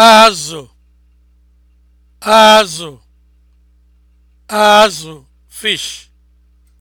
azụ azụ azụ fish